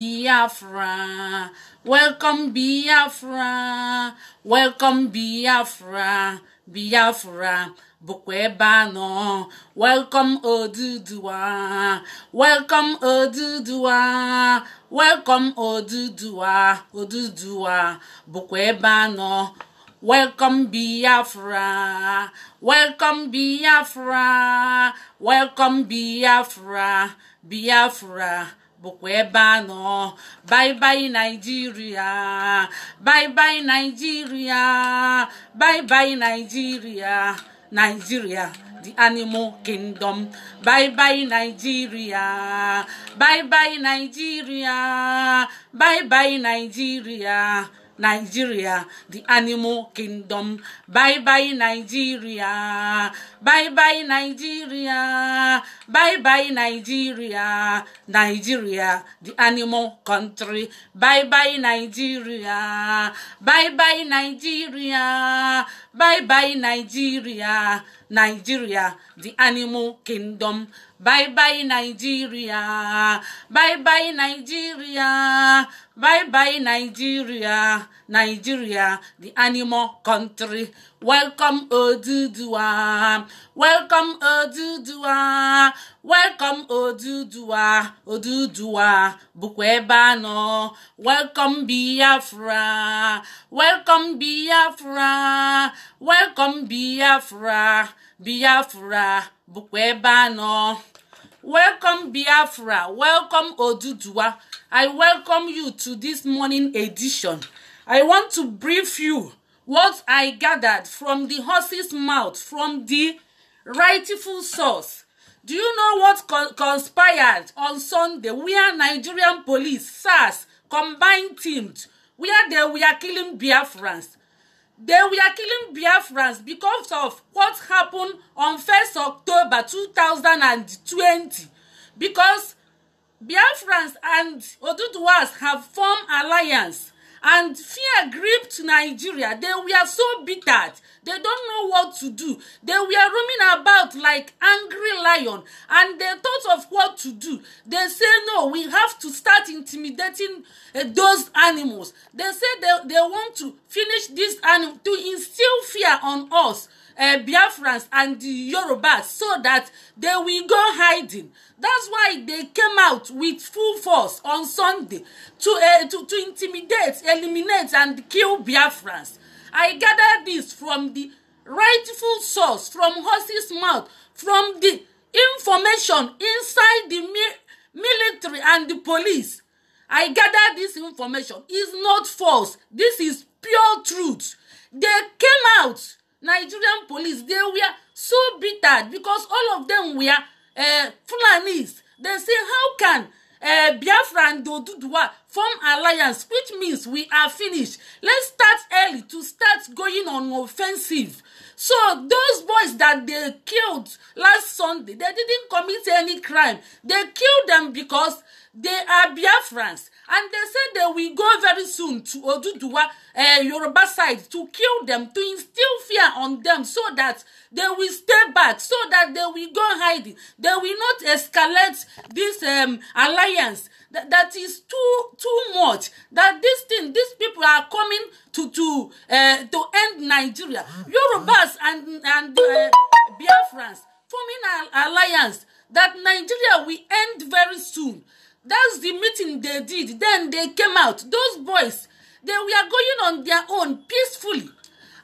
Biafra, welcome Biafra, welcome Biafra, Biafra, Bukwebano, welcome Oduduwa, welcome Oduduwa, welcome Oduduwa, Odudua, Bukwebano, Welcome Biafra, welcome Biafra, welcome Biafra, Biafra. Bye bye Nigeria, bye bye Nigeria, bye bye Nigeria, Nigeria, the animal kingdom bye bye nigeria bye bye nigeria bye bye nigeria nigeria the animal kingdom bye bye nigeria Bye bye Nigeria. Bye bye Nigeria. Nigeria, the animal country. Bye bye Nigeria. Bye bye Nigeria. Bye bye Nigeria. Nigeria, the animal kingdom. Bye bye Nigeria. Bye bye Nigeria. Bye bye Nigeria. Nigeria, the animal country. Welcome Oduduwa, Welcome Oduduwa, Welcome Oduduwa, Oduduwa bụkwa ebe a nọ. Welcome Biafra. Welcome Biafra. Welcome Biafra. Biafra bụkwa ebe a nọ. Welcome Biafra. Welcome Oduduwa. I welcome you to this morning edition. I want to brief you what I gathered from the horse's mouth, from the rightful source. Do you know what conspired on Sunday where Nigerian police, SARS, combined teamed, where they were killing Biafrans? They were killing Biafrans because of what happened on 1st October 2020. Because Biafrans and Oduduwas have formed alliance and fear gripped Nigeria. They were so bitter. They don't know what to do. They were roaming about like angry lion and they thought of what to do. They say, no, we have to start intimidating uh, those animals. They say they, they want to finish this animal, to instill fear on us uh, Biafrans and the Yorubas so that they will go hiding. That's why they came out with full force on Sunday to, uh, to, to intimidate, eliminate, and kill Biafrans. I gather this from the rightful source, from horse's mouth, from the information inside the mi military and the police. I gather this information. is not false. This is pure truth. They came out nigerian police they were so bitter because all of them were uh, fulanis they say how can uh, biafra and oduduwa form alliance which means we are finished let's start early to start going on offensive so those boys that they killed last sunday they didn't commit any crime they killed them because They are Biafrans. And they said they will go very soon to Oduduwa, uh, eh, Yoruba side, to kill them, to instill fear on them so that they will stay back, so that they will go hiding. They will not escalate this um, alliance that, that is too too much that this thing these people are coming to to uh, to end nigeria yorubas and and uh, biafrans forming an alliance that nigeria will end very soon that's the meeting they did then they came out those boys they were going on their own peacefully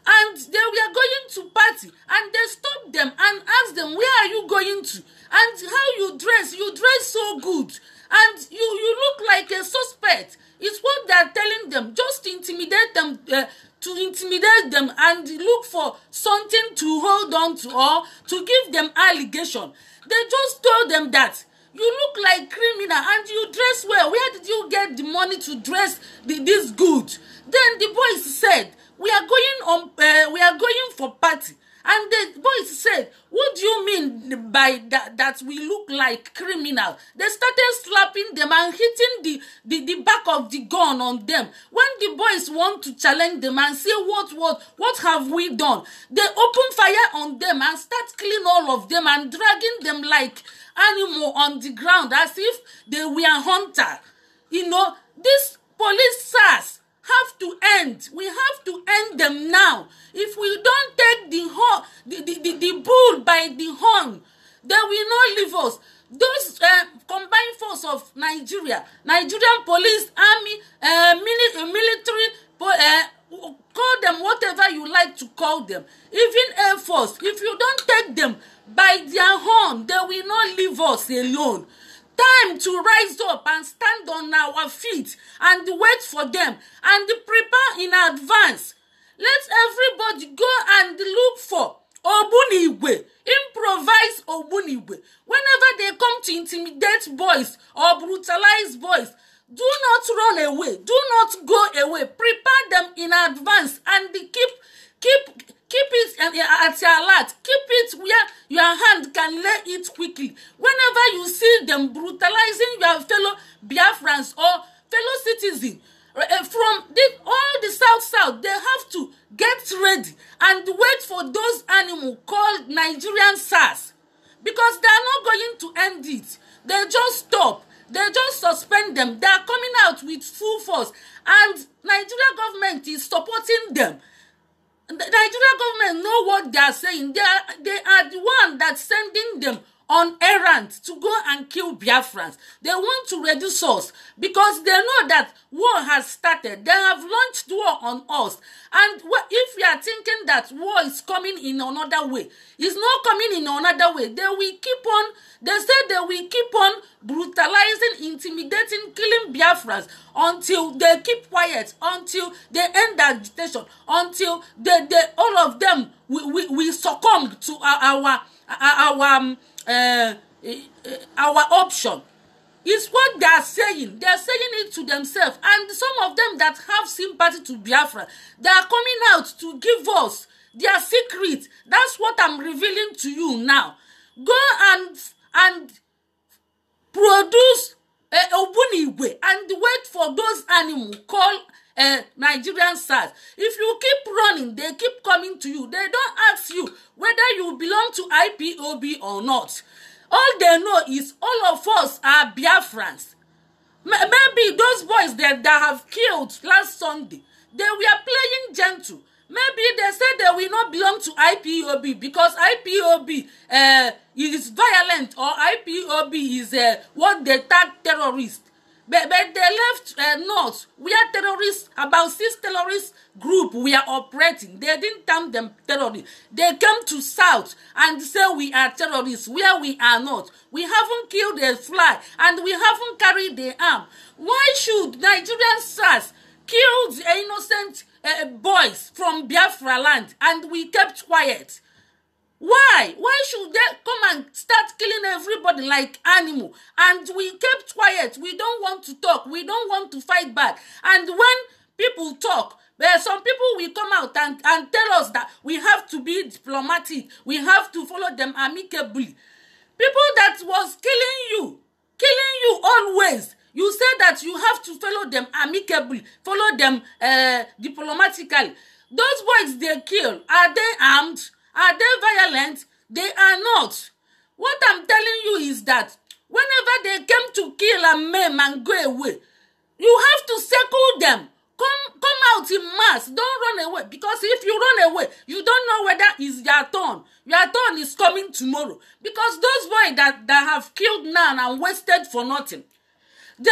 and they were going to party and they stopped them and asked them where are you going to and how you dress you dress so good and you you look like a suspect it's what they are telling them just intimidate them uh, to intimidate them and look for something to hold on to or to give them allegation they just told them that you look like criminal and you dress well where did you get the money to dress the, this good then the boys said we are going on uh, we are going for party And the boys said, What do you mean by that, that we look like criminals? They started slapping them and hitting the, the, the back of the gun on them. When the boys want to challenge them and say, What, what, what have we done? They open fire on them and start killing all of them and dragging them like animal on the ground as if they were hunter. You know, these police SARS have to end. We have to end them now. If we don't take the horn, the, the, the, the bull by the horn, they will not leave us. Those uh, combined force of Nigeria, Nigerian police, army, uh, mili- uh, military, uh, call them whatever you like to call them, even Air Force, if you don't take them by their horn, they will not leave us alone time to rise up and stand on our feet and wait for them and prepare in advance. Let everybody go and look for Obuniwe. Improvise Obuniwe. Whenever they come to intimidate boys or brutalize boys, do not run away. Do not go away. Prepare them in advance and keep keep keep it uh, uh, at your alert keep it where your hand can lay it quickly whenever you see them brutalizing your fellow biafrans or fellow citizen uh, from the, all the south south they have to get ready and wait for those animal called nigerian sars because they are not going to end it they just stop they just suspend them they are coming out with full force and nigeria government is supporting them The Nigerian government know what they are saying. They are, they are the one that's sending them on errand to go and kill Biafrans. They want to reduce us because they know that war has started. They have launched war on us. And if we are thinking that war is coming in another way, it's not coming in another way. They will keep on, they say they will keep on brutalizing, intimidating, killing Biafrans until they keep quiet, until they end the agitation, until they, they all of them we, we, we succumb to our, our our um, uh, uh, our option is what they are saying. They are saying it to themselves. And some of them that have sympathy to Biafra, they are coming out to give us their secret. That's what I'm revealing to you now. Go and and produce uh, Obuniwe and wait for those animals. Call uh, nigerian sars if you keep running they keep coming to you they don't ask you whether you belong to ipob or not all they know is all of us are biafrans maybe those boys that, that have killed last sunday they were playing gentle maybe they said they will not belong to ipob because ipob uh, eh, is violent or ipob is uh, what they tag terrorists but, but they left uh, north where terrorists about six terrorist group were operating they didn't term them terrorists they came to south and say we are terrorists where we are not we haven't killed a fly and we haven't carried the arm why should nigerian sars kill the innocent uh, boys from biafra land and we kept quiet Why? Why should they come and start killing everybody like animal? And we kept quiet. We don't want to talk. We don't want to fight back. And when people talk, there eh, some people will come out and, and tell us that we have to be diplomatic. We have to follow them amicably. People that was killing you, killing you always. You said that you have to follow them amicably, follow them uh, diplomatically. Those boys they kill, are they armed? Are they violent? They are not. What I'm telling you is that whenever they came to kill and maim and go away, you have to circle them. Come, come out in mass. Don't run away because if you run away, you don't know whether it's your turn. Your turn is coming tomorrow because those boys that, that have killed none and wasted for nothing, they,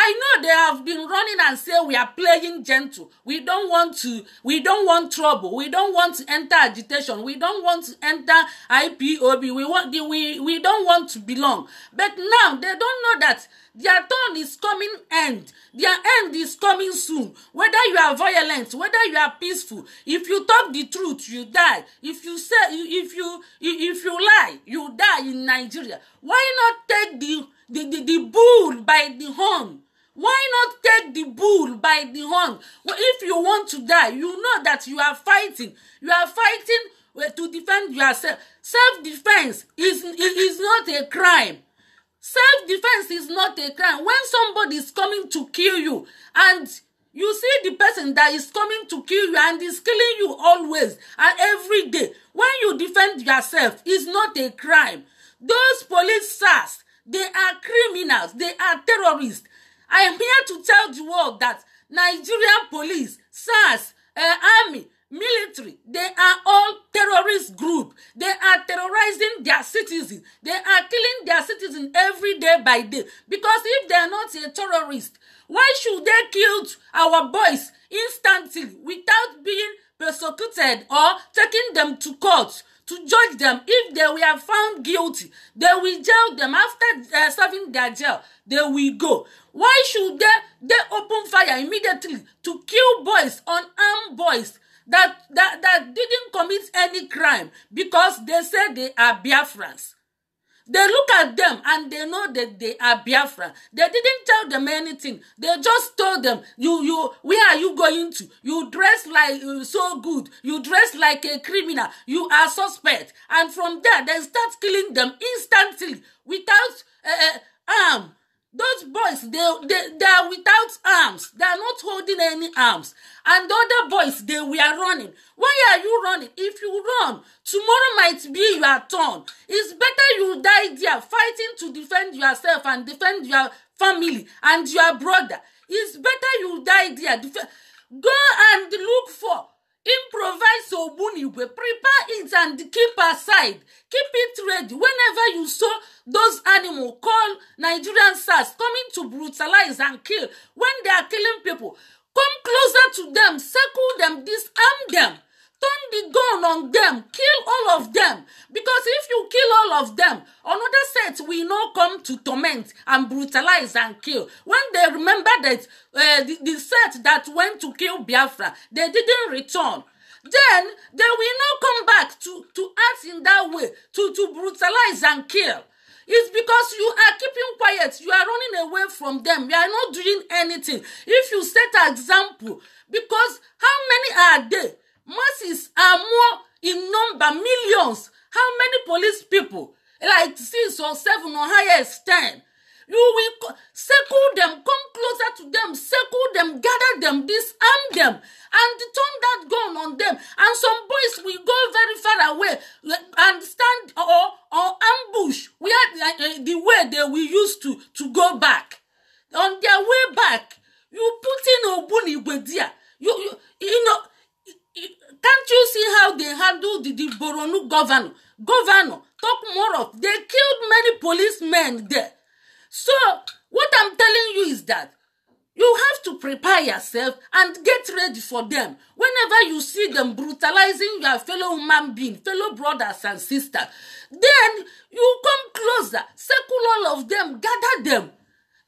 I know they have been running and say we are playing gentle. We don't want to, we don't want trouble. We don't want to enter agitation. We don't want to enter IPOB. We want the, we, we don't want to belong. But now they don't know that their turn is coming end. Their end is coming soon. Whether you are violent, whether you are peaceful, if you talk the truth, you die. If you say if you if you lie, you die in Nigeria. Why not take the the, the, the bull by the horn Why not take the bull by the horn? If you want to die, you know that you are fighting. You are fighting to defend yourself. Self-defense is, is not a crime. Self-defense is not a crime. When somebody is coming to kill you and you see the person that is coming to kill you and is killing you always and every day, when you defend yourself, is not a crime. Those police SARS, they are criminals, they are terrorists. I am here to tell the world that Nigerian police, SARS, uh, army, military, they are all terrorist group. They are terrorizing their citizens. They are killing their citizens every day by day. Because if they are not a terrorist, why should they kill our boys instantly without being persecuted or taking them to court? to judge them. If they were found guilty, they will jail them. After uh, serving their jail, they will go. Why should they, they open fire immediately to kill boys, unarmed boys? That, that, that didn't commit any crime because they said they are Biafrans. They look at them and they know that they are Biafra. They didn't tell them anything. They just told them, "You, you, where are you going to? You dress like uh, so good. You dress like a criminal. You are suspect." And from there, they start killing them instantly without uh, uh arm. Those boys, they, they, they are without arms. They are not holding any arms. And the other boys, they were running. Why are you running? If you run, tomorrow might be your turn. It's better fighting to defend yourself and defend your family and your brother it's better you die there Def- go and look for improvise ogbunigwe prepare it and keep aside keep it ready whenever you saw those animal call nigerian sars coming to brutalize and kill when they are killing people come closer to them circle them disarm them turn the gun on them kill all of them because if you kill all of them another set will no come to torment and brutalize and kill when they remember that uh, the, the set that went to kill biafra they didn't return then they will not come back to, to act in that way, to, to brutalize and kill. It's because you are keeping quiet. You are running away from them. You are not doing anything. If you set an example, because how many are there? masses are more in number millions how many police people like six or seven or highest ten you will circle them come closer to them circle them gather them disarm them and turn that gun on them and some boys will go very far away and stand or or ambush where uh, the way they will use to to go back on their way back you put in ogbunigwe there you you they handled the, the Boronu governor. Governor, talk more of. They killed many policemen there. So, what I'm telling you is that you have to prepare yourself and get ready for them. Whenever you see them brutalizing your fellow human being, fellow brothers and sisters, then you come closer, circle all of them, gather them,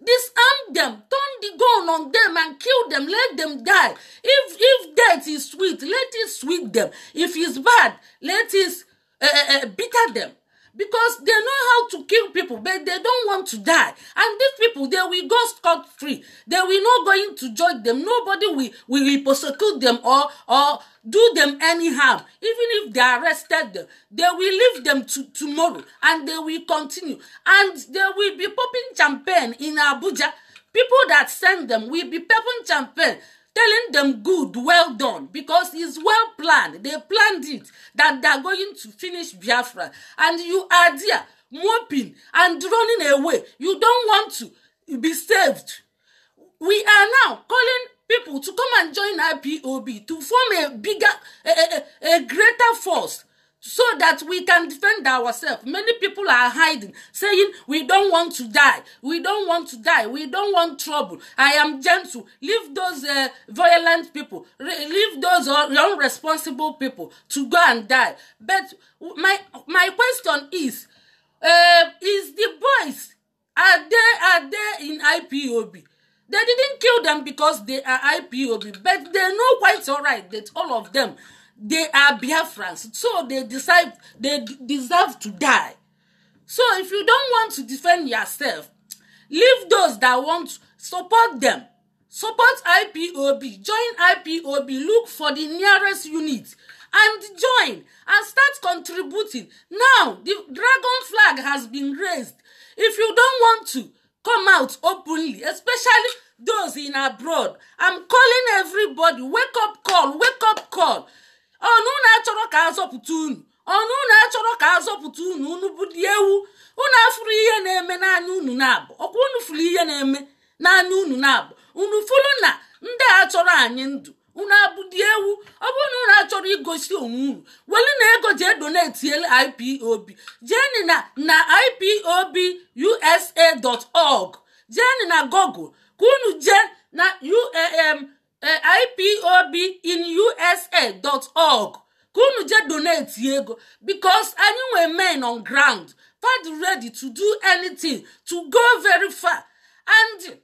disarm them, turn the gun on them and kill them, let them die. If if death is sweet, let it sweet them. If it's bad, let it uh, uh, bitter them because they know how to kill people but they don't want to die and these people they will go scot free they will not going to join them nobody will will prosecute them or or do them any harm even if they arrested them they will leave them to tomorrow and they will continue and they will be popping champagne in abuja people that send them will be popping champagne telling them good well done because it's well planned they planned it that they are going to finish biafra and you are there moping and running away you don't want to be saved we are now calling people to come and join ipob to form a bigger a, a, a greater force so that we can defend ourselves. Many people are hiding, saying, We don't want to die. We don't want to die. We don't want trouble. I am gentle. Leave those uh, violent people, Re- leave those uh, irresponsible people to go and die. But my, my question is uh, Is the boys, are they, are they in IPOB? They didn't kill them because they are IPOB, but they know quite all right that all of them they are Biafrans, so they decide they deserve to die. So if you don't want to defend yourself, leave those that want support them. Support IPOB, join IPOB, look for the nearest unit and join and start contributing. Now the dragon flag has been raised. If you don't want to come out openly, especially those in abroad, I'm calling everybody wake up call, wake up call. ọnụ na-achọrọ ka azọpụta unu ọnụ na-achọrọ ka azọpụta unu unu bụ dị ewu unu afụrụ ihe na-eme n'anya unu na-abụ ọkwa unu furu ihe na-eme n'anya unu na-abụ unu fụrụ na ndị a chọrọ anyị ndụ unu abụdị ewu ọ bụrụ na unu achọrọ igosi onwe unu na ego jee ipob jeni na na org jeni na google ka unu na uam ipob in usa dot org ka unu jee donate ego because anyị nwee men on ground fad ready to do anything to go very far and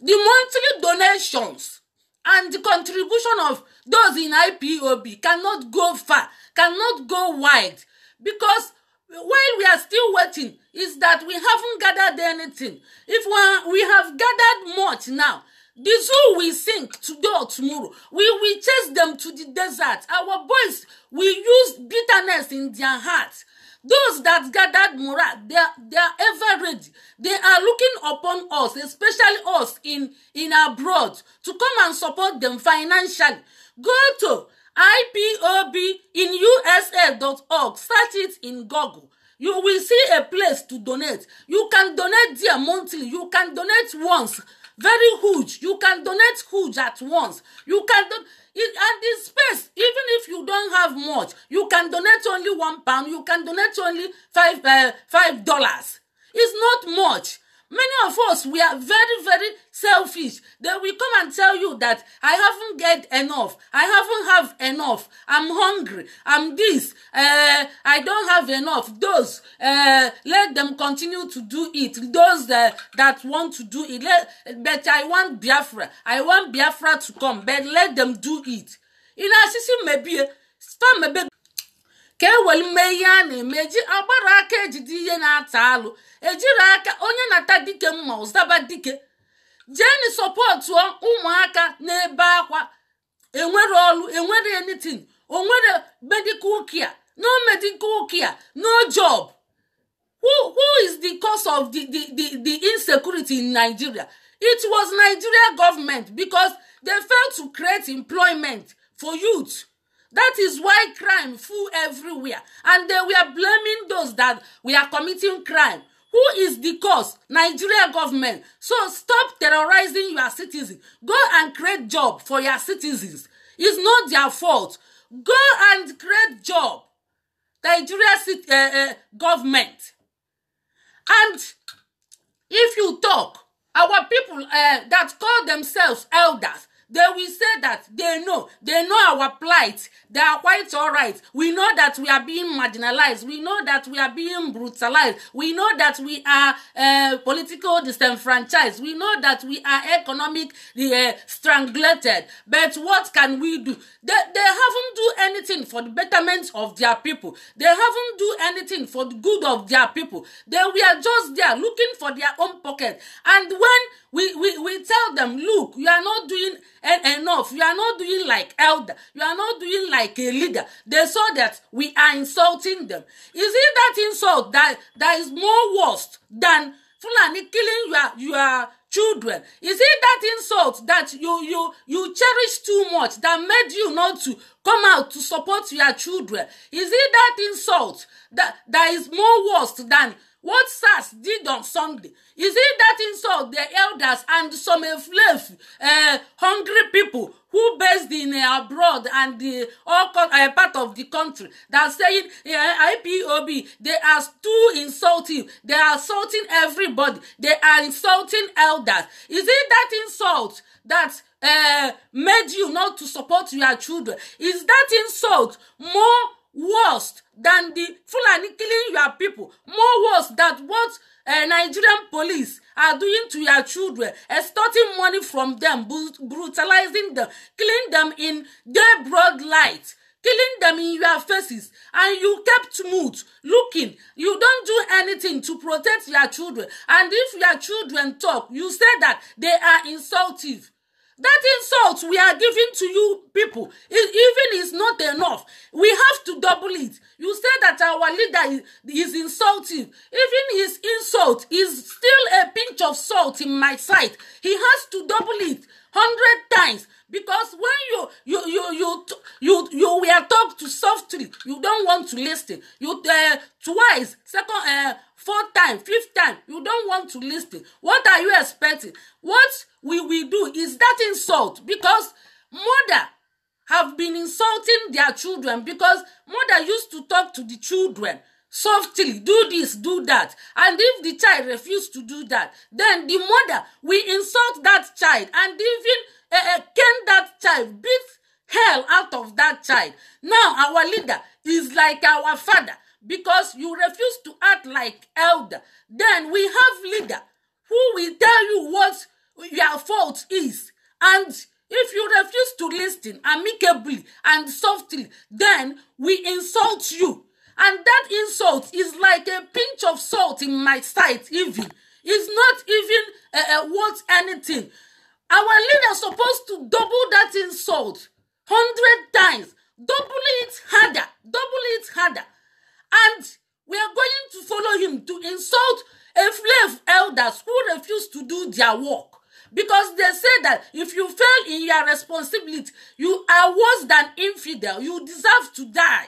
the monthly donations and the contribution of those in ipob cannot go far cannot go wide because while we are still waiting is that we haven't gathered anything if we, we have gathered much now The zoo will sink today or tomorrow. We will chase them to the desert. Our boys will use bitterness in their hearts. Those that gathered morale, they are, they are ever ready. They are looking upon us, especially us in, in abroad, to come and support them financially. Go to ipobinusa.org, search it in Google. You will see a place to donate. You can donate there monthly. You can donate once very huge you can donate huge at once you can don and this space even if you don't have much you can donate only one pound you can donate only five uh, five dollars it's not much many of us we are very very selfish Then we come and tell you that i haven't get enough i haven't have enough i'm hungry i'm this uh, i don't have enough those uh, let them continue to do it those uh, that want to do it let, but i want biafra i want biafra to come but let them do it ina sisi mebie storm mebe ka e were mee ihe a na-eme eji agbara aka ejide ihe na-ata alụ ejiri aka onye na-ata dike mma ụzaba dike jeni sọpọtụọ ụmụaka na-ebe akwa enwere ọlụ enwere enitin onwere medical care no medical care no job who who is the cause of the the the, the insecurity in nigeria it was nigeria government because they failed to create employment for youth That is why crime full everywhere. And they were blaming those that we are committing crime. Who is the cause? Nigeria government. So stop terrorizing your citizens. Go and create job for your citizens. It's not their fault. Go and create job. Nigeria uh, uh, government. And if you talk, our people uh, that call themselves elders, They will say that they know, they know our plight. They are quite all right. We know that we are being marginalized. We know that we are being brutalized. We know that we are uh, political disenfranchised. We know that we are economic uh, strangulated. But what can we do? They, they haven't do anything for the betterment of their people. They haven't do anything for the good of their people. They were just there looking for their own pocket. And when we, we, we tell them, look, you are not doing and enough you are not doing like elder you are not doing like a leader they saw that we are insulting them is it that insult that that is more worse than fulani killing your your children is it that insult that you you you cherish too much that made you not to come out to support your children is it that insult that that is more worse than what SARS did on Sunday? Is it that insult the elders and some enslaved, uh, hungry people who based in uh, abroad and the all con- uh, eh, part of the country that saying uh, IPOB they are too insulting. They are insulting everybody. They are insulting elders. Is it that insult that uh, made you not to support your children? Is that insult more? worse than the Fulani killing your people more worse than what uh, Nigerian police are doing to your children extorting money from them brutalizing them killing them in their broad light killing them in your faces and you kept mute looking you don't do anything to protect your children and if your children talk you say that they are insultive That insult we are giving to you people, it, e, even is not enough. We have to double it. You say that our leader is, is insulting. Even his insult is still a pinch of salt in my sight. He has to double it hundred times because when you you you you you you were talked to softly, you don't want to listen. You uh, twice, second uh, four times fifth time you don't want to listen what are you expecting what we will do is that insult because mother have been insulting their children because mother used to talk to the children softly do this do that and if the child refuse to do that then the mother will insult that child and even uh, cane that child beat hell out of that child now our leader is like our father because you refuse to act like elder. Then we have leader who will tell you what your fault is. And if you refuse to listen amicably and softly, then we insult you. And that insult is like a pinch of salt in my sight, even. It's not even uh, uh, worth anything. Our leader supposed to double that insult hundred times, double it harder, double it harder. And we are going to follow him to insult enslaved elders who refuse to do their work. Because they say that if you fail in your responsibility, you are worse than infidel. You deserve to die.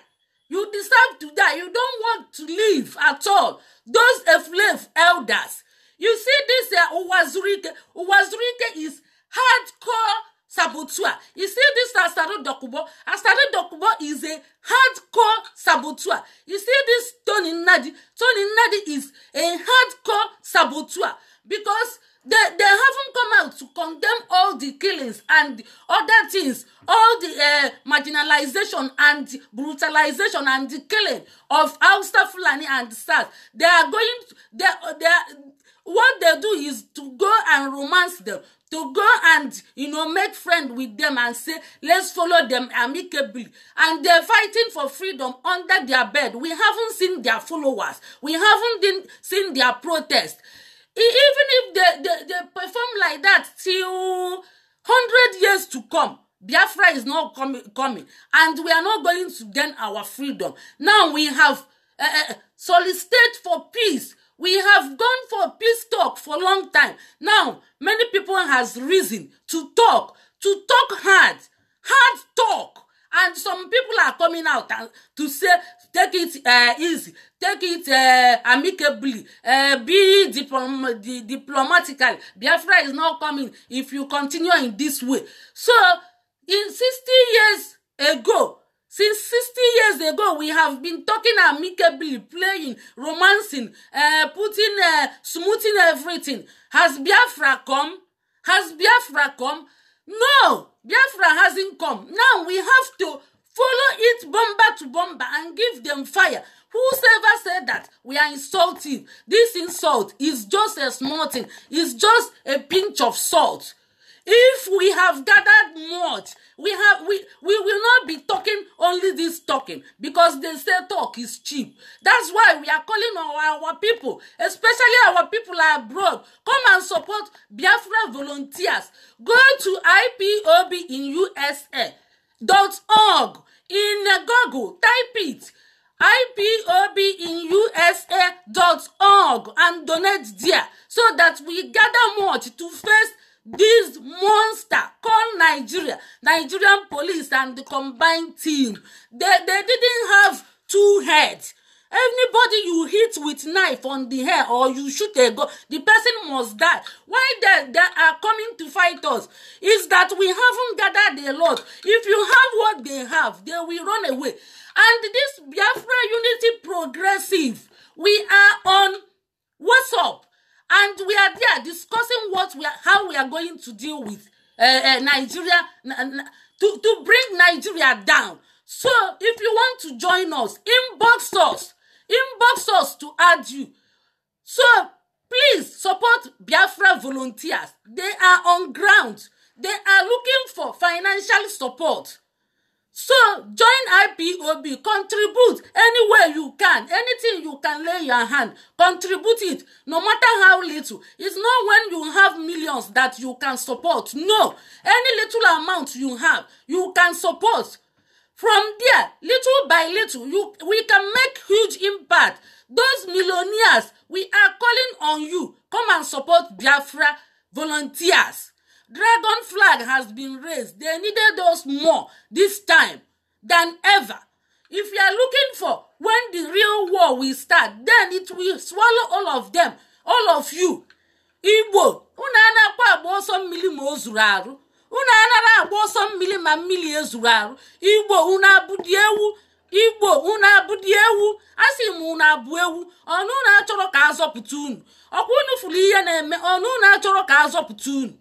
You deserve to die. You don't want to live at all. Those enslaved elders. You see, this who uh, Uwazurike. Uwazurike is hardcore saboteur. You see this Asado Dokubo? Asado Dokubo is a hardcore saboteur. You see this Tony Nadi? Tony Nadi is a hardcore saboteur because they, they haven't come out to condemn all the killings and other things, all the uh, eh, marginalisation and brutalisation and the killing of Hausa Fulani and SARS. They are going, to, they, they, what they do is to go and romance them to go and you know make friend with them and say let's follow them amicably and they're fighting for freedom under their bed we haven't seen their followers we haven't seen their protest e, even if they, they, they perform like that till 100 years to come biafra is not coming coming and we are not going to gain our freedom now we have uh, eh, eh, eh, solicited for peace We have gone for peace talk for long time. Now, many people has reason to talk, to talk hard, hard talk. And some people are coming out and to say, take it uh, easy, take it uh, amicably, uh, be diplom- di- diplomatical. Biafra is not coming if you continue in this way. So, in 60 years ago, Since sixty years ago, we have been talking amicably, playing, romancing, uh, putting, uh, smoothing everything. Has Biafra come? Has Biafra come? No, Biafra hasn't come. Now we have to follow it bomber to bomber and give them fire. Whosoever said that we are insulting, this insult is just a small thing, it's just a pinch of salt. If we have gathered much, we have we we will not be talking only this talking because they say talk is cheap. That's why we are calling on our, our people, especially our people abroad, come and support Biafra volunteers. Go to IPOB in USA dot org in Google. Type it ipob in usa dot org and donate there so that we gather much to face this monster called Nigeria, Nigerian police and the combined team. They, they didn't have two heads. Anybody you hit with knife on the hair or you shoot a gun, the person must die. Why they, they are coming to fight us is that we haven't gathered a lot. If you have what they have, they will run away. And this Biafra Unity Progressive, we are on WhatsApp and we are there discussing what we are how we are going to deal with uh, uh, Nigeria to to bring Nigeria down so if you want to join us inbox us inbox us to add you so please support Biafra volunteers they are on ground they are looking for financial support So join IPOB, contribute any way you can, anything you can lay your hand, contribute it, no matter how little. It's not when you have millions that you can support. No, any little amount you have, you can support. From there, little by little, you we can make huge impact. Those millionaires, we are calling on you. Come and support Biafra volunteers. Dragon flag has been raised. They needed us more this time than ever. If you are looking for when the real war will start, then it will swallow all of them, all of you. Igbo, unu anakwa agba ọsọ mmiri ma o zuru arụ. Unu anara agba ọsọ mmiri ma mmiri ezuru arụ. Igbo, unu abụdị ewu. Igbo, unu abụdị ewu. Asị m unu abụ ewu. Ọnụ unu achọrọ ka azọpụta unu. Ọkwa unu fụrụ ihe na-eme, ọnụ unu achọrọ ka azọpụta unu.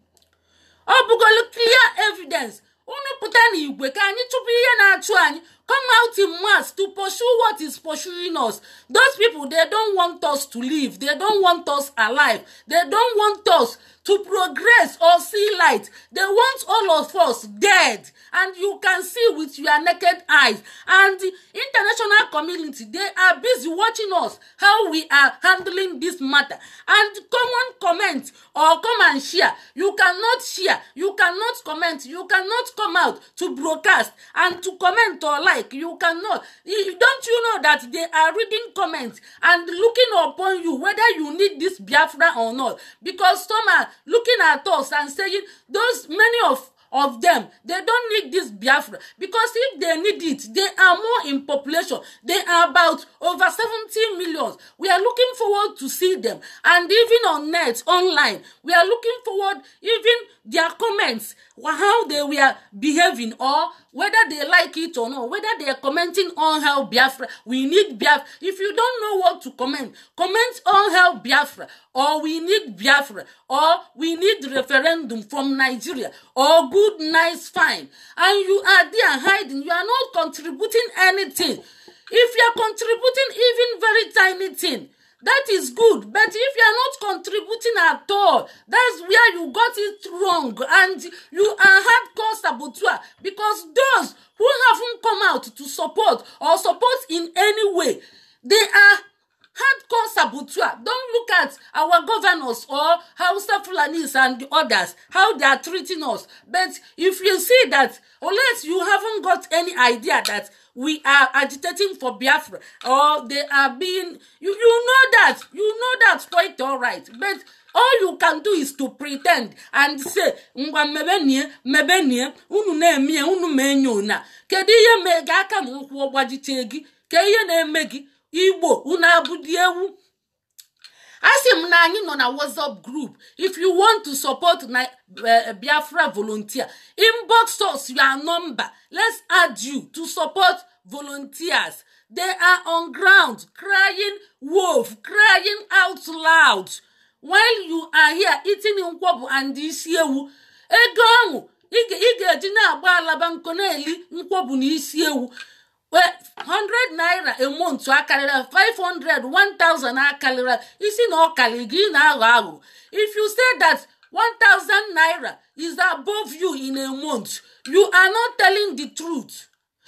ọ bụgolo clear evidence unu pụta n'igwe ka anyị chụpụ ihe na-achụ anyị come out in mass to pursue what is pursuing us those people they don't want us to live they don't want us alive they don't want us to progress or see light they want all of us dead and you can see with your naked eyes and the international community they are busy watching us how we are handling this matter and common comment or come and share you cannot share you cannot comment you cannot come out to broadcast and to comment or like like you cannot don't you know that they are reading comments and looking upon you whether you need this biafra or not because some are looking at us and saying those many of of them they don't need this biafra because if they need it they are more in population they are about over seventeen million we are looking forward to see them and even on net online we are looking forward even their comments how they were behaving or whether they like it or not whether they are commenting on how biafra we need biafra if you don't know what to comment comment on how biafra or we need biafra or we need referendum from nigeria or good nice fine and you are there hiding you are not contributing anything if you are contributing even very tiny thing that is good but if you are not contributing at all that's where you got it wrong and you are hard core saboteur because those who haven't come out to support or support in any way they are Hardcore consabutua don look at our governors or hausa fulanis and others how they are treating us but if you see that unless you haven't got any idea that we are agitating for biafra or they are being you you know that you know that quite all right but all you can do is to pretend and say ngwa mmebe nie mmebe nie unu na-emie unu ma enyo na kedu ihe mee gị aka na ụkwụ ọgbajite gị ke ihe na-eme gị igbo una di ewu asị m na anyị nọ na whatsapp group if you want to support na eh, eh, biafra volunteer inbox us your number let's add you to support volunteers they are on ground crying wolf crying out loud when you are here eating nkwọbụ and isi ewu ego ahụ ị ga-eji na-agba alaba nkọ na-eli nkwọbụ na isi ewu hundred naira emu ntu akarịrị five hundred one thousand akarịrị isi na ọkarị gị na-aghọ aghụ if you say that one thousand naira is above you in a month you are not telling the truth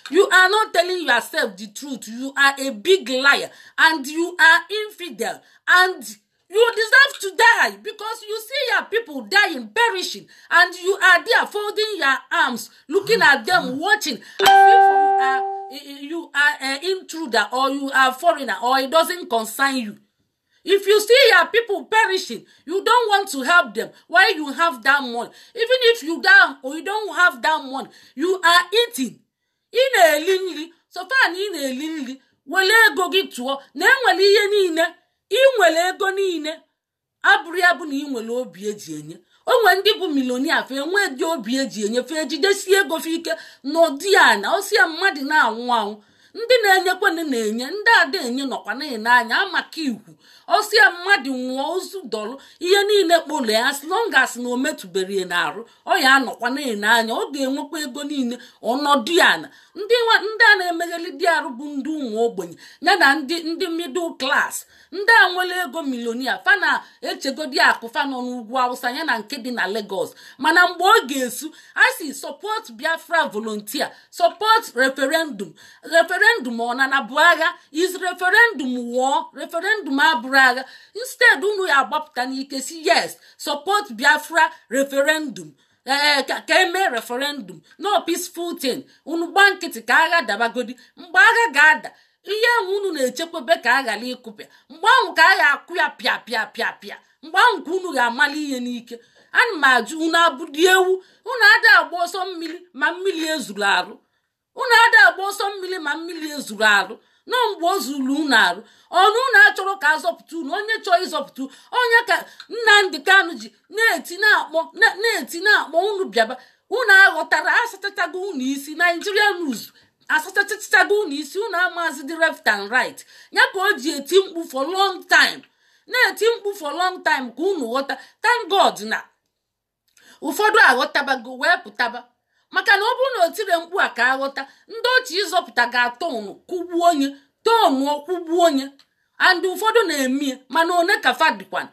you are not telling yourself the truth you are a big liar and you are infidel and you deserve to die because you see your people dying perishing and you are there folding your arms looking at them watching as if you are you are an eh, intruder or you are foreigner or it doesn't concern you. If you see your people perishing, you don't want to help them. Why you have that money? Even if you down or you don't have that money, you are eating. In a linli, so far in a linli, wele ego gị tụọ na enwere ihe niile, ị nwere ego niile, ni ya bụ ni. ị nwere obi eji enye. onwe ndị bụ milonia fe enwe dị obi eji enyefe jidesie ego fe ike n'ụdị a na osie mmadụ na-anwụ anwụ ndị na-enyekwanụ na-enye ndị ada enye nọkwa na-enye anya amaka ikwu osi ya mmadụ nwụọ ozu dọlụ ihe niile kpolu ya as long as na arụ metụbere n'arụ ọ ya anọkwa na-ene anya ọ ga-enwekwa ego niile ọnọdụ ya na ndị a na-emegheli di arụ bụ ndị ụmụ ogbenye ya na ndị ndị middle class ndị a nwere ego milionia fana echegodi akụ fanọ n'ugwu awụsa ya na nke dị na Lagos mana mgbe ọ ga-esu asi support Biafra volontia support referendum referendum ọ na na bụ agha is referendum wụọ referendum abụrụ gara aga instead unu agbapụta n'ike si yes support biafra referendum eh, eh, ka eme referendum no peaceful thing unu gba nkịtị ka agha dabagodi mgbe agha ga-ada ihe ahụ unu na-echekwebe ka a ghara ịkụpịa mgbe ahụ ka a ga-akụ ya pịa pịa pịa pịa mgbe ahụ ka unu ga-amali ihe n'ike ana m ajụ unu abụdị ewu unu ada agba ọsọ mmiri ma mmiri ezuru agba ọsọ mmiri ma mmiri ezuru arụ na mgbe o zuru unu arụ ọnụ unu achọrọ ka azọpụta unu onye chọọ ịzọpụta onye ka nnamdị kanụ ji na-eti na-akpọ na-eti na-akpọ unu bịaba unu aghọtara asachachago unu isi naijiria nuz asachachachago unu isi unu amazi dị left and right ya ka o ji eti mkpu for long time na-eti mkpu for long time ka unu ghọta thank god na ụfọdụ aghọtabago wee pụtaba maka na ọ bụrụ na o tiri mkpu a ka aghọta ndị ochi ịzọpụta ga-atọnụ kụgbuo onye tọnụ ọkwụgbuo onye and ụfọdụ na-eme mana one ka fadikwan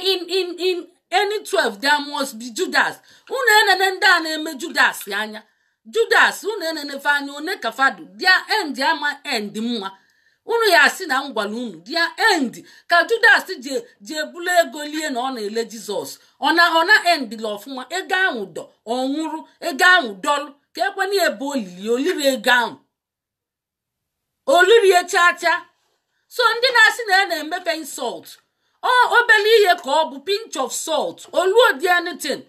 n in in 12 there must bi judas unu enene ndị a na-eme judas anya judas unu enene anya one ka fadu dia end ama end mma unu ya asị na m gwara unu dia end ka judas ji ji ebulu ego lie na ọ na-ele jizọs ọ na ọ na endila ọfụma ego ahụ dọ ọ nwụrụ ego ahụ dọlụ ka ekwena ebe olili oliri ego ahụ olirie chaa so ndị na-asị na ya na-emefe insult ọ obere ihe ka ọ bụ pinch of salt oluodi anything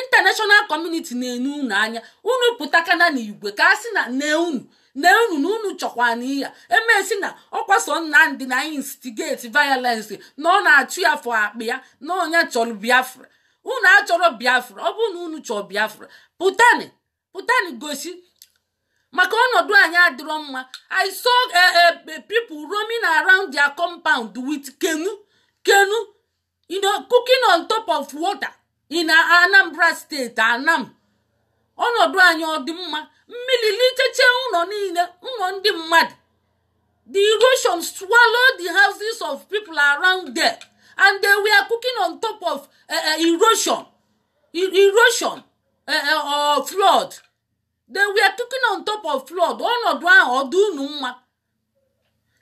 international community na-enu unu anya unu pụtakana n'igwe ka a sị na nne unu na unu na unu chọkwa na iya emesi na ọkwaso nnamdị na instigate violence na ọ na-achụ ya afọ akpa ya na onye chọrọ biafra unu achọrọ biafra ọ bụrụ na unu chọọ biafra pụtani pụtani gosi maka ọnọdụ anyị adịrọ mma i saw eh, eh, people roaming around their compound with kenu kenu you know cooking on top of water in Anambra steeti anam ọnọdụ anyị ọ dị mma mmiri lichecha ụlọ niile ụlọ ndị mmadụ the erosion swallowed the houses of people around there and they were cooking on top of uh, erosion e, erosion uh, or flood they were cooking on top of flood ọnọdụ ahụ ọ dị unu mma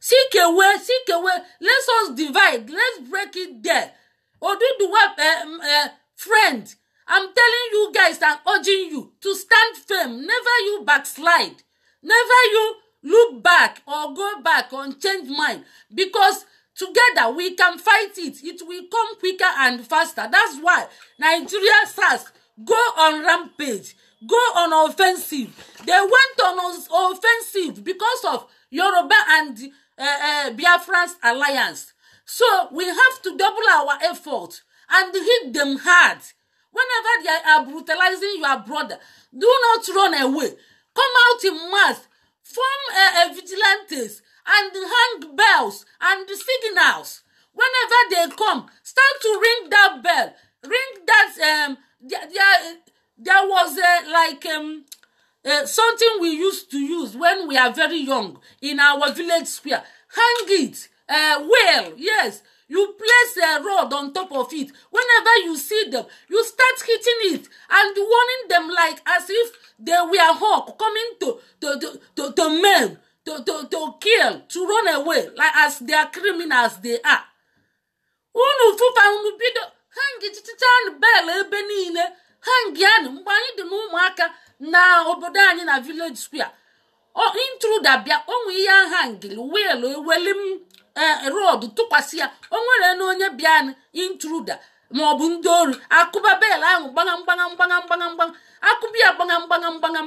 seek away seek away let us divide let's break it there oduduwa uh, uh, friend I'm telling you guys and urging you to stand firm. Never you backslide. Never you look back or go back and change mind because together we can fight it. It will come quicker and faster. That's why Nigeria SARS go on rampage, go on offensive. They went on offensive because of Yoruba and uh, eh, uh, eh, Biafran's alliance. So we have to double our effort and hit them hard. Whenever they are brutalizing your brother, do not run away. Come out in mass, form a, a vigilantes and hang bells and signals. Whenever they come, start to ring that bell. Ring that um there, there, there was a like um uh, something we used to use when we are very young in our village square. Hang it, uh, well, yes, you place a rod on top of it whenever you see them you start hitting it and warning them like as if they were hawk coming to to to to, to men to, to to kill to run away like as they are criminals they are unu fụfa unu bido hang chichanụ bel ebe niile hangianụ mgbe anyị dị n'ụmụaka na obodo anyị na village square intruder bịa onwe ihe ahangili wiil eweli Eh, rod tụkwasị ya o nwere na onye bịa intruda ma ọ bụ ndị ori akụba bel ahụ gbaga mgbaga mgbaga mgbaga mgbaga akụba ya gbaga mgbaga mgbaga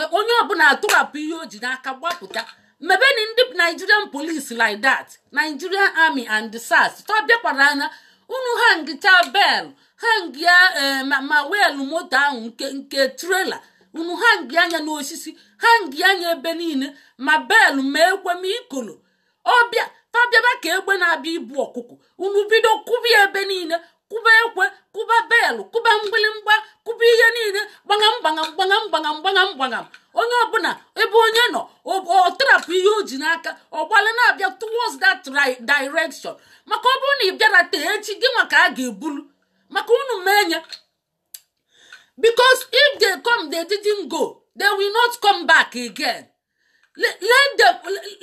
eh, onye ọbụla atụrapụ ihe o ji n'aka gbapụta mebeni ndị nigerian police like that nigerian army and sas tọ bịakwara anya unu hangichaa bel hangịa eh, ma weelụ moto ahụ nke trela unu hangi anya n'osisi hangi anya ebe niile ma bel ma ekwe ma ikolo ọbịa ha bịaba ka egbe na-abịa ibu ọkụkọ unu bido kụba ebe niile kụba ekwe kụba belụ kụba mgbịlịmgba kụba ihe niile gbagham gbagham gbagham gbagham gbagham onye ọbụla ebe onye nọ ọ ihe o ji n'aka ọgbala na-abịa towards that direction maka ọ bụrụ na ị bịara tee echi gị maka a ga-ebulu maka unu menye because if the come didn't go they will not come back again let, let,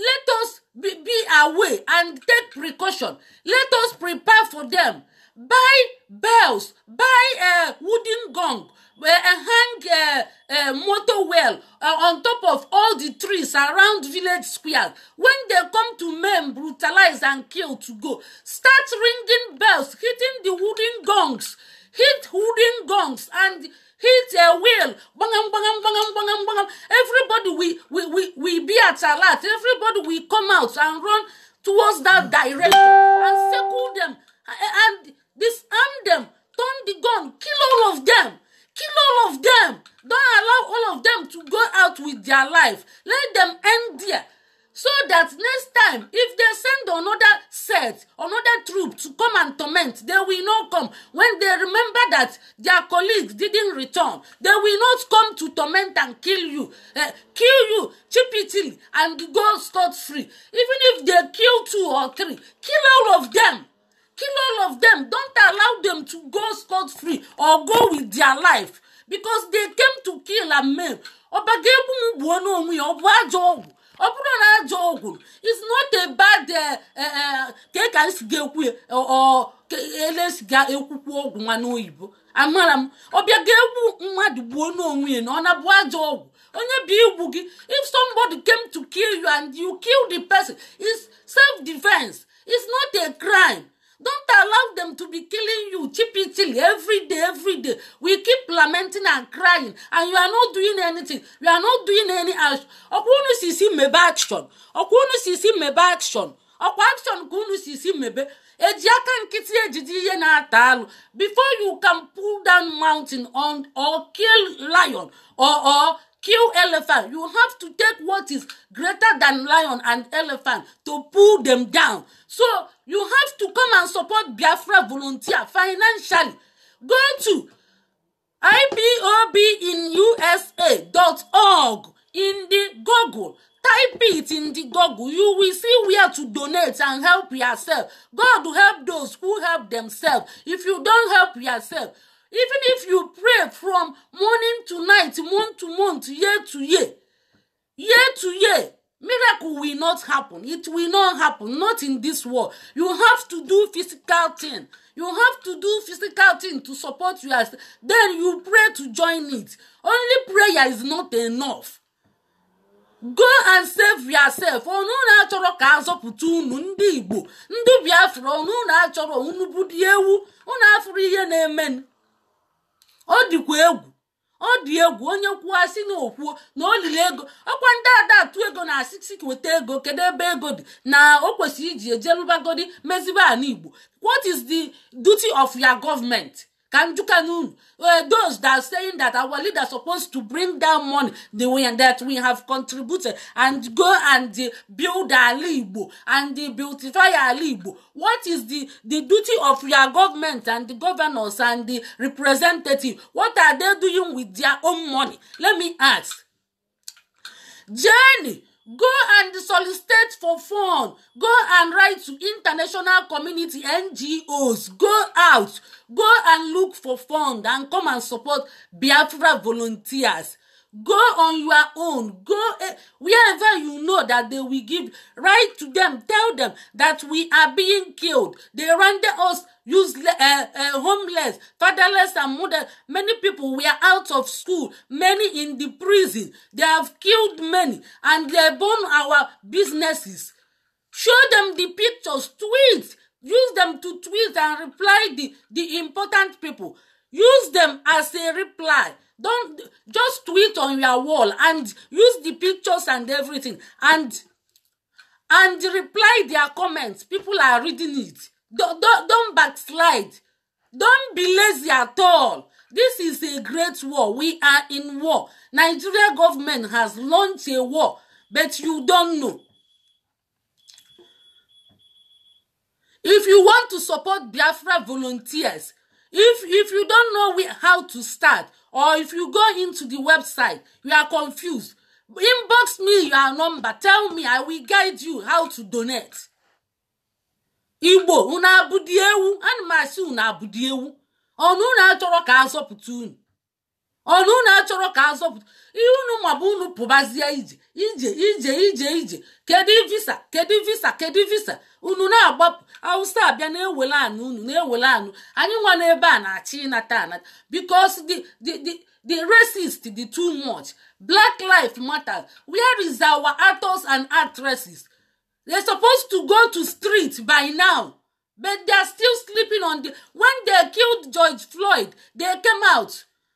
let us be, be away and take precaution. Let us prepare for them. Buy bells, buy a uh, wooden gong, uh, hang uh, uh, motor well uh, on top of all the trees around village square. When they come to men, brutalize and kill to go. Start ringing bells, hitting the wooden gongs, hit wooden gongs and He's their will. Bangam, bangam, bangam, bangam, bangam. Everybody we, we, we, we be at alert. Everybody we come out and run towards that direction and circle them and, disarm them. Turn the gun. Kill all of them. Kill all of them. Don't allow all of them to go out with their life. Let them end there so that next time if they send another set another troop to come and torment they will not come when they remember that their colleagues didn't return they will not come to torment and kill you uh, kill you cheaply and go scot-free even if they kill two or three kill all of them kill all of them don't allow them to go scot-free or go with their life because they came to kill and maim ọba ga-egbu m gbuo ọ bụrụ na ajọ ọgwụ is not a bad eh, eh, eh, ka e ka esi ga-ekwu elesi ga-ekwukwu ọgwụ nwa oyibo. amara m ọbịa ga-egbu mmadụ gbuo n'onwe ya na ọ na-abụ ajọ ọgwụ onye bụ igbu gị if somebody came to kill you and you kill the person is self defense is not a crime Don't allow them to be killing you cheaply every day, every day. We keep lamenting and crying, and you are not doing anything. You are not doing any action. Ọkùnrin sì sí mẹ̀bẹ̀ action. Ọkùnrin sì sí mẹ̀bẹ̀ action. Ọkwa action ka unu sì sí mẹ̀bẹ̀. Eji aka nkịtị ejide ihe na-ata alụ. Before you can pull down mountain on, or kill lion or, or kill elephant you have to take what is greater than lion and elephant to pull them down so you have to come and support biafra volunteer financially go to ipob in usa dot org in the google type it in the google you will see where to donate and help yourself god help those who help themselves if you don help yourself even if you pray from morning to night month to month year to year year to year miracle will not happen it will not happen not in this world you have to do physical thing you have to do physical thing to support yourself then you pray to join it only prayer is not enough go and save yourself ọnụ na-achọrọ ka azọpụta unu ndị igbo ndị biafra ọnụ na-achọrọ unu bụ dị ewu unu afụrụ ihe na-emenụ ọ dịkwa egwu ọ dị egwu onye kwuo si na okwuo na olili ego ọkwa ndị ada ego na asịsị nweta ego kedu ebe ego dị na o kwesịrị iji ejelubagodi mezibe ala igbo what is the duty of your government Kanjukanun, uh, those that are saying that our leader is supposed to bring down money the way that we have contributed and go and uh, build Alibo and uh, beautify Alibo. What is the, the duty of your government and the governors and the representative? What are they doing with their own money? Let me ask. Jenny, go and solicit for fund go and write to international community ngos go out go and look for fund and come and support biafra volunteers Go on your own. Go uh, wherever you know that they will give. Write to them. Tell them that we are being killed. They render us useless, uh, uh, homeless, fatherless, and mother. Many people were out of school, many in the prison. They have killed many and they burn our businesses. Show them the pictures, tweet, use them to tweet and reply the, the important people. Use them as a reply don't just tweet on your wall and use the pictures and everything and and reply their comments people are reading it don't don't, don't backslide don't be lazy at all this is a great war we are in war nigeria government has launched a war but you don't know if you want to support biafra volunteers if if you don't know where, how to start or if you go into the website you are confused inbox me your number tell me i will guide you how to donate igbo unu abụdị ewu ana m asị unu abụdị ewu ọnụ ka a unu ọnụ unu achọrọ ka azọpụta ihe unu mabụ unu pụbazie ije ije ije ije ije kedu visa kedu visa kedu visa unu na-agbapụ awụsa abịa na-ewele anụ unu na-ewele anụ anyị nwa n'ebe a na-achị ịnata anata because the the the the racist the too much black life matters where is our actors and actresses they supposed to go to street by now but they are still sleeping on the when they killed George Floyd they came out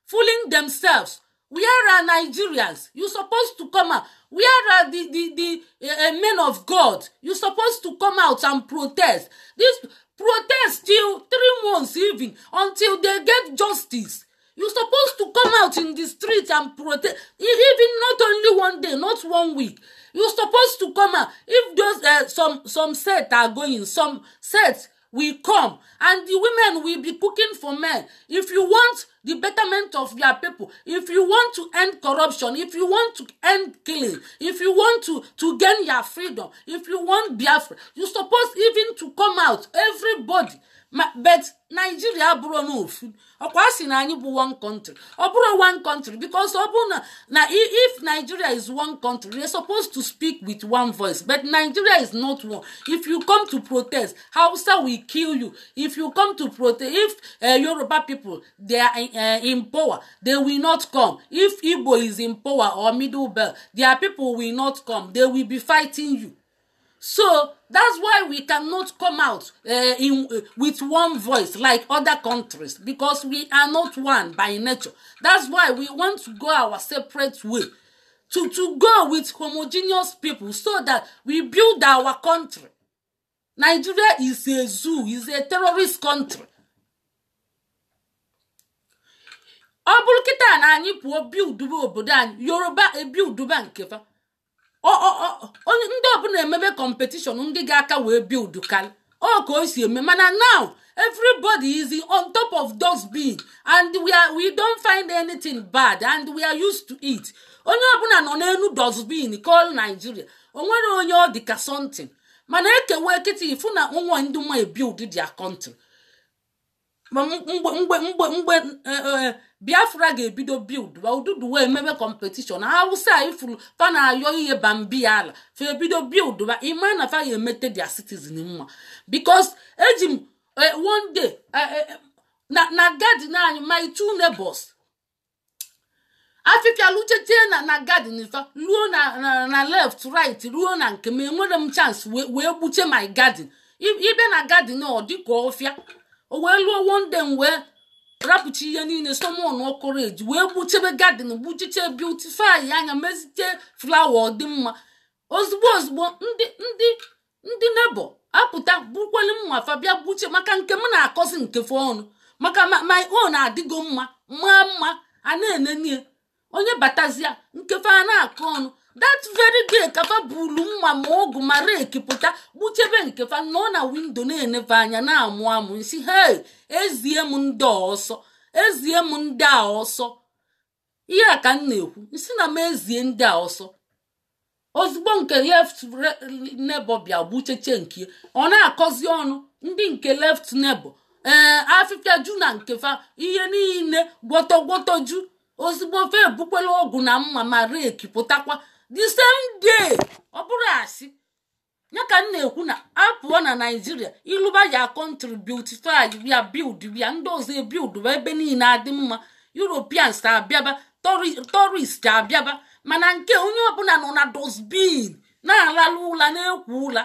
fooling themselves. Where are Nigerians? You supposed to come out. Where are the, the, the uh, men of God? You supposed to come out and protest. This protest till three months even until they get justice. You supposed to come out in the street and protest. E, even not only one day, not one week. You supposed to come out. If those uh, some some sets are going, some sets will come and the women will be cooking for men if you want the betterment of your people if you want to end corruption if you want to end killing if you want to to gain your freedom if you want biafra you suppose even to come out everybody but Nigeria abụrụ n'ofu ọkwa sị na anyị bụ one country ọ one country because na if nigeria is one country they supposed to speak with one voice but nigeria is not one if you come to protest hausa will kill you if you come to protest if uh, yoruba people they are uh, in power they will not come if igbo is in power or middle belt their people will not come they will be fighting you so that's why we cannot come out uh, in, uh, with one voice like other countries because we are not one by nature. That's why we want to go our separate way to, to go with homogeneous people so that we build our country. Nigeria is a zoo, is a terrorist country. ọ bụrụ kịta na anyị pụọ biuduba obodo anyị yoruba eh, onye ndị ọbụla emebe kọmpetishọn ndị ga-aka wee bild ọ ka o si eme mana now everybody is on top of those bin and we are, we don't find anything bad and we are used to it onye ọbụla nọ n'elu dosbin call Nigeria o nwere onye ọ dị ka something mana ekewe kịta ifu na nwa ndị nwa ebild dia country mgbe mgbe mgbe mgbe eh, eh, biafra ga-ebido bild ududu wee mebe kọmpetishọn hausa ifuru fanayọ ayọ ihe bambi ya ala fa ebido bild ba ima na fa emete dia citizen mma bikos eji m e, one day e, e, na gadin anyị my two neighbors afịfịa luchetie na na gadin fa ruo na left right ruo na nke m enwere m chance wee gbuche my garden ibe na gadin ọ dịka ọfịa o wee lụọ one day wee rapụcha ihe niile somon ọkọreji wee gbuchebe gadin gbuchiche beautify anya mezite flawa ọdịmma ozugbo ozugbo ndị ndị ndị nebo apụta bukweli mma fabia gbuche maka nke m na-akọzi nkefe ọnụ maka my own adịgo mma maa mma a na-enenie onye batazia nkefe a na-akọ ọnụ that very day kafa buru nwa ma ọgụ ma reki pụta gbuchebe nkefa nọ na windo na enefe anya na-amụ amụ nsi hei ezie m ndị ọsọ ezie m ndị a ọsọ ihe a ka m na-ekwu nsi na m ezie ndị a ọsọ ozugbo nke left neighbor bịa gbucheche nke ọ na-akọzi ọnụ ndị nke left neighbor ee eh, afịfịa ju na nkefa ihe niile gwọtọgwọtọ ju ozugbo fe ebukwela na mma ma reki pụtakwa the same day ọ bụrụ asị ya ka m na-ekwu na apụọ na naijiria ịlụba ya contributify ya bild ya ndị ọzọ ebild ebe niile adị mma europeans abịaba torist abịaba mana nke onye ọbụla nọ na dosbin na alala ụla na-ekwu ụla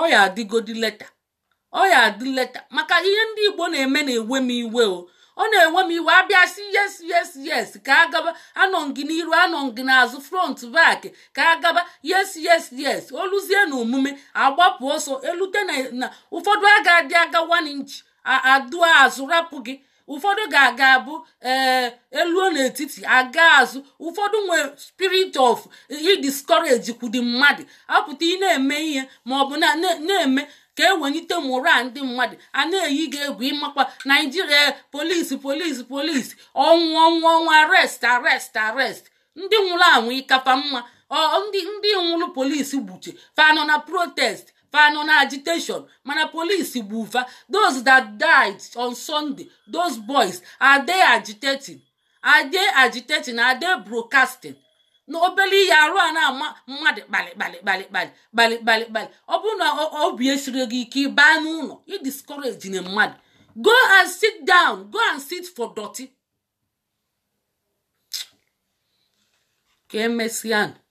ọ ya adịgodi leta adị leta maka ihe ndị igbo na-eme na-ewe m iwe o ọ na-enwe m iwe abịa si yes yes yes ka agaba anọ gị n'iru anọ gị n'azụ front back ka agaba yes yes yes oluzie na omume agbapụ ọsọ elute na ụfọdụ aga-adị aga one inch adụ azụ rapụ gị ụfọdụ ga-aga abụ elu eh, eluo n'etiti aga azụ ụfọdụ nwere spirit of i kwudi mmadụ apụta ị na-eme ihe ma ọ bụ na ka e mụrụ a ndị mmadụ a na-eyi gị egwu ịmakwa naijiria polisi polisi polisi ọnwụ ọnwụ ọnwụ arest arest arest ndị nwụrụ anwụ ịkapa mma ndị ndị nwụrụ polisi gbuche fanọ na protest fanọ na agitation mana polisi ụfa those that died on sunday those boys are they agitating are they agitating are they broadcasting na obere ihe arụ a na-ama mmadụ kpalịkpalị kpalịkpalị ọ bụrụ na obi esiri gị ike ịbaa n'ụlọ ịdiscourage na mmadụ go and sit down go and sit for dọtị ka e